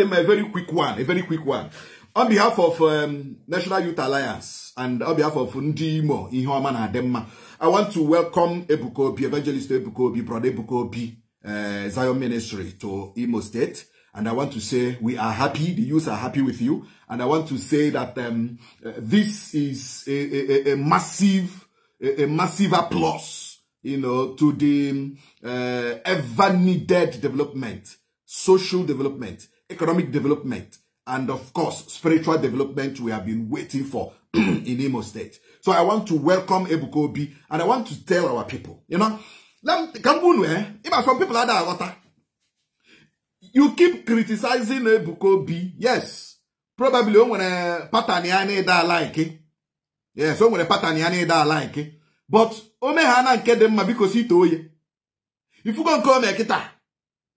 a very quick one, a very quick one. On behalf of um, National Youth Alliance and on behalf of Ndimo, Ihoaman Ademma, I want to welcome Ebukobi Evangelist Ebukobi, Brother Ebukobi uh, Zion Ministry to Imo State. And I want to say we are happy, the youth are happy with you. And I want to say that um, uh, this is a, a, a massive, a, a, massive applause, you know, to the uh, ever needed development, social development economic development, and of course, spiritual development we have been waiting for in Imo State. So I want to welcome Ebukobi and I want to tell our people, you know, eh? some people are that You keep criticizing Ebukobi, yes. Probably when a pattern that like Yes, when a pattern that like But Omehana and Kedema because he told you. If you go and call me a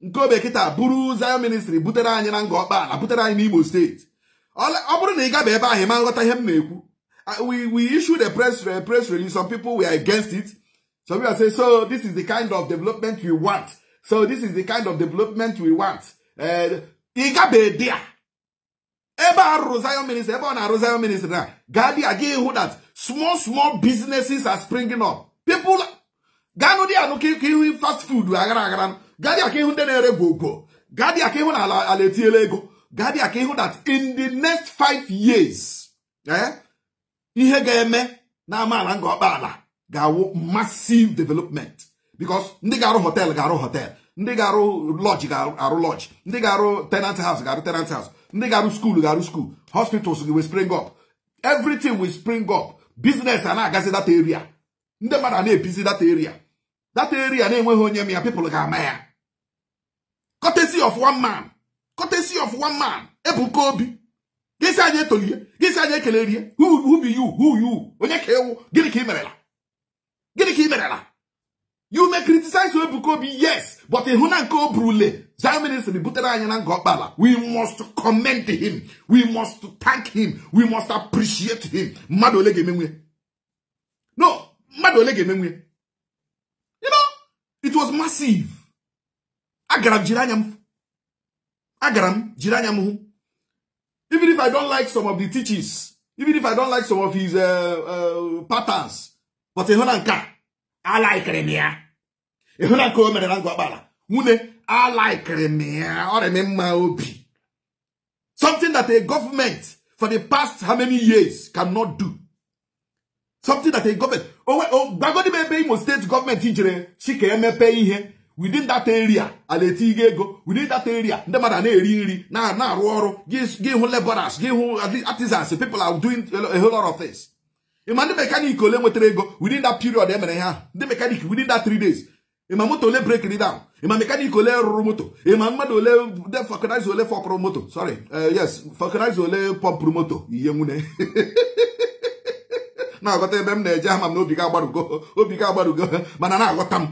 nke obekịta bụrụ Zion Ministry butere anyị na nga ọkpa ala butere anyị n'Imo steeti ọ bụrụ na ị gaba ebe ahụ ma nghọta ihe m na-ekwu uh, we we issued a press a press release some people we are against it some people say so this is the kind of development we want so this is the kind of development we want uh, ị gaba ebe a ebe a rụrụ Zion Ministry ebe ọ na-arụ Zion Ministry na gaa dị a that small small businesses are springing up people ganụ dị anụ ka ihu fast food aghara aghara gadị aka ihu ndị na-ere gwogwo gadị aka ihu na ala etinyela ego gadị aka ihu that in the next five years eh, ihe ga-eme na amaala nga ọkpa ala ga-awụ massive development because ndị ga-arụ hotel ga-arụ hotel ndị ga-arụ lodge ga-arụ lodge ndị ga-arụ tenant house ga-arụ tenant house ndị ga-arụ school ga-arụ school hospitals will spring up everything will spring up business a agazi data area ndị mmadụ a na-ebizi data area data area na-enweghị onye m ya people ga-ama ya courtesy of one man courtesy of one man ebuka obi gịsị anyị etolie gịsị anyị ekele rie who be you who you onye ka ewu gịnị ka ị merela gịnị ka merela you may criticize ebuka obi yes but ịhụ na nke obrule zioministry butere anyị na nga we must commend him we must thank him we must appreciate him mmadụ ole no mmadụ ole you know it was massive agara m jiri anya m agara m jiri anya m hụ even if i don't like some of the teachings even if i don't like some of his uh, uh, patterns but ịhụ na nke a laikiri m ya ịhụ na nke o mere na ngwakpala nwunye a laikiri m ya ọ reme mma obi something that a government for the past how many years cannot do something that a government oh, oh, gbagodi m ebe Imo state government jere si ka emepe ihe within that area a na-etinye ego within that area ndị mmadụ a na-eri nri na-arụ ọrụ gị hụ laborers gị hụ artisans people are doing a whole lot of things ịma ndị mekanik ole nwetara ego within that period e mere ha ndị mekanik within that three days ịma moto ole break it down ịma mekanik ole rụrụ moto ịma mmadụ ole vulcanizer ole fọpụrụ moto sorry eh, yes vulcanizer ole pọmpụrụ moto ihe nwune na-aghọta ebe m na-eje ama m na obi ga agbarugo obi ga agbarugo mana na-aghọta m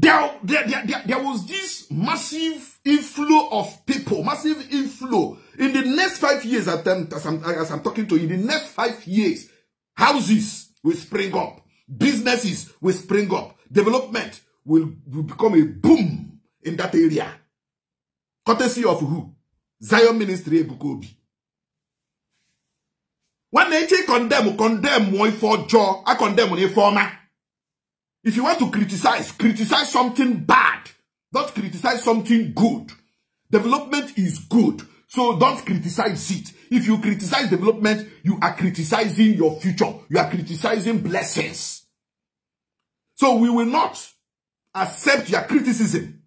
there, there, there, there, was this massive inflow of people, massive inflow. In the next five years, as I'm, as I'm talking to you, in the next five years, houses will spring up, businesses will spring up, development will, will become a boom in that area. Courtesy of who? Zion Ministry Ebukobi. When they condemn, condemn one for jaw, I condemn one for If you want to criticize, criticize something bad. Don't criticize something good. Development is good. So don't criticize it. If you criticize development, you are criticizing your future. You are criticizing blessings. So we will not accept your criticism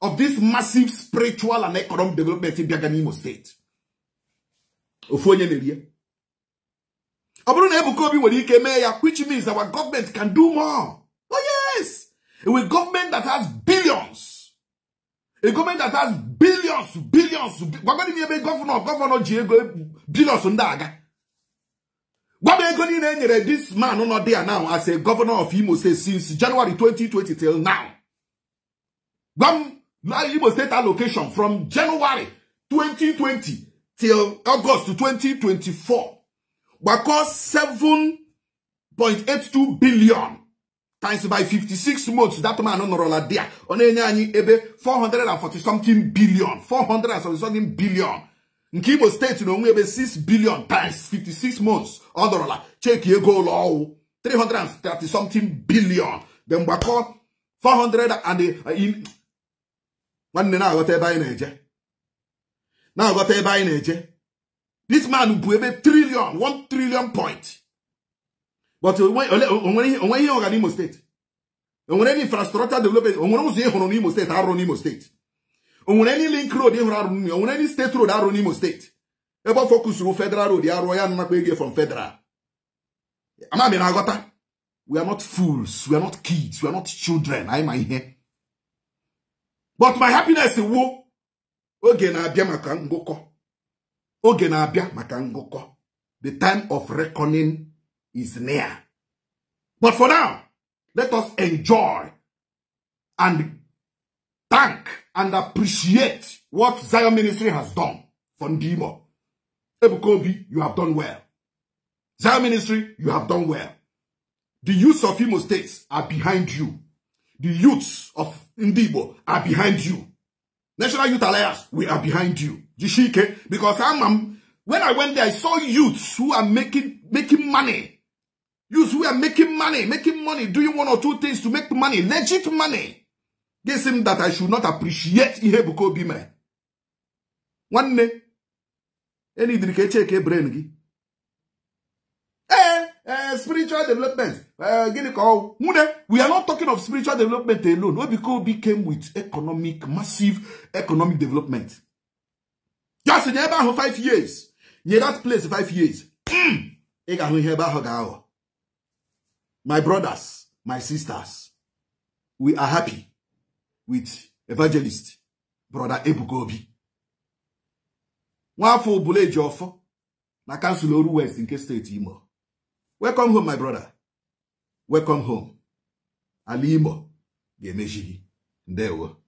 of this massive spiritual and economic development in Biaganimo State. ya, Which means our government can do more. A government that has billions. A government that has billions, billions. Gwagwani mi ebe governor, governor ji ego billions ndaga. Gwagwani ego ni nenyere this man no there now as a governor of Imo State since January 2020 till now. Gwam Imo State allocation from January 2020 till August 2024. Gwakọ 7.82 billion times by 56 months that man nọrọla dia ọ na-enye anyị ebe 440 something billion 400 something billion nke Imo steeti na ebe 6 billion times 56 months ọ nọrọla cheki ego ụlọ ọwụ 330 something billion the mgbakọ 400 and uh, nwanne na-aghọta ebe anyị na-eje na-aghọta ebe anyị na-eje this man bụ ebe trillion 1 trillion point but onwere ihe ọga n'Imo steeti onwere any infrastructure development onwere ụzọ ịhụrụ hụrụ n'Imo steeti arụ n'Imo steeti onwere any link road ịhụrụ arụ n'Imo onwere any steeti road arụ n'Imo steeti ebe ọ fọkusuru federal road ya rụọ ya nnakwa ego from federal amami na agota we are not fools we are not kids we are not children anyị ma ihe but my happiness wo oge na-abịa maka ngụkọ oge na-abịa maka ngụkọ the time of reckoning is near. But for now, let us enjoy and thank and appreciate what Zion Ministry has done for Ndimo. Ebukobi, you have done well. Zion Ministry, you have done well. The youths of Imo States are behind you. The youths of Ndibo are behind you. National Youth Alliance, we are behind you. Jishike, because I'm, I'm, when I went there, I saw youths who are making making money You who are making money, making money, doing one or two things to make money, legit money. Guess him that I should not appreciate Ihebuko Bime. One day, any drink check a e brain. Eh, eh, spiritual development. Uh, we are not talking of spiritual development alone. Ihebuko came with economic, massive economic development. Just in about five years. Near that place, five years. Mm. My brothers, my sisters, we are happy with evangelist brother Ebuka Obi. Nwafọ Obuleji Ọfọ na kansụl Oru West nke steeti Imo. Welcome home my brother. Welcome home. Ala Imo ga-emechi gị. Ndewo.